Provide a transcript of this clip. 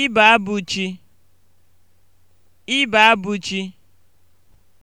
Ịbụ abụ chi. Ịbụ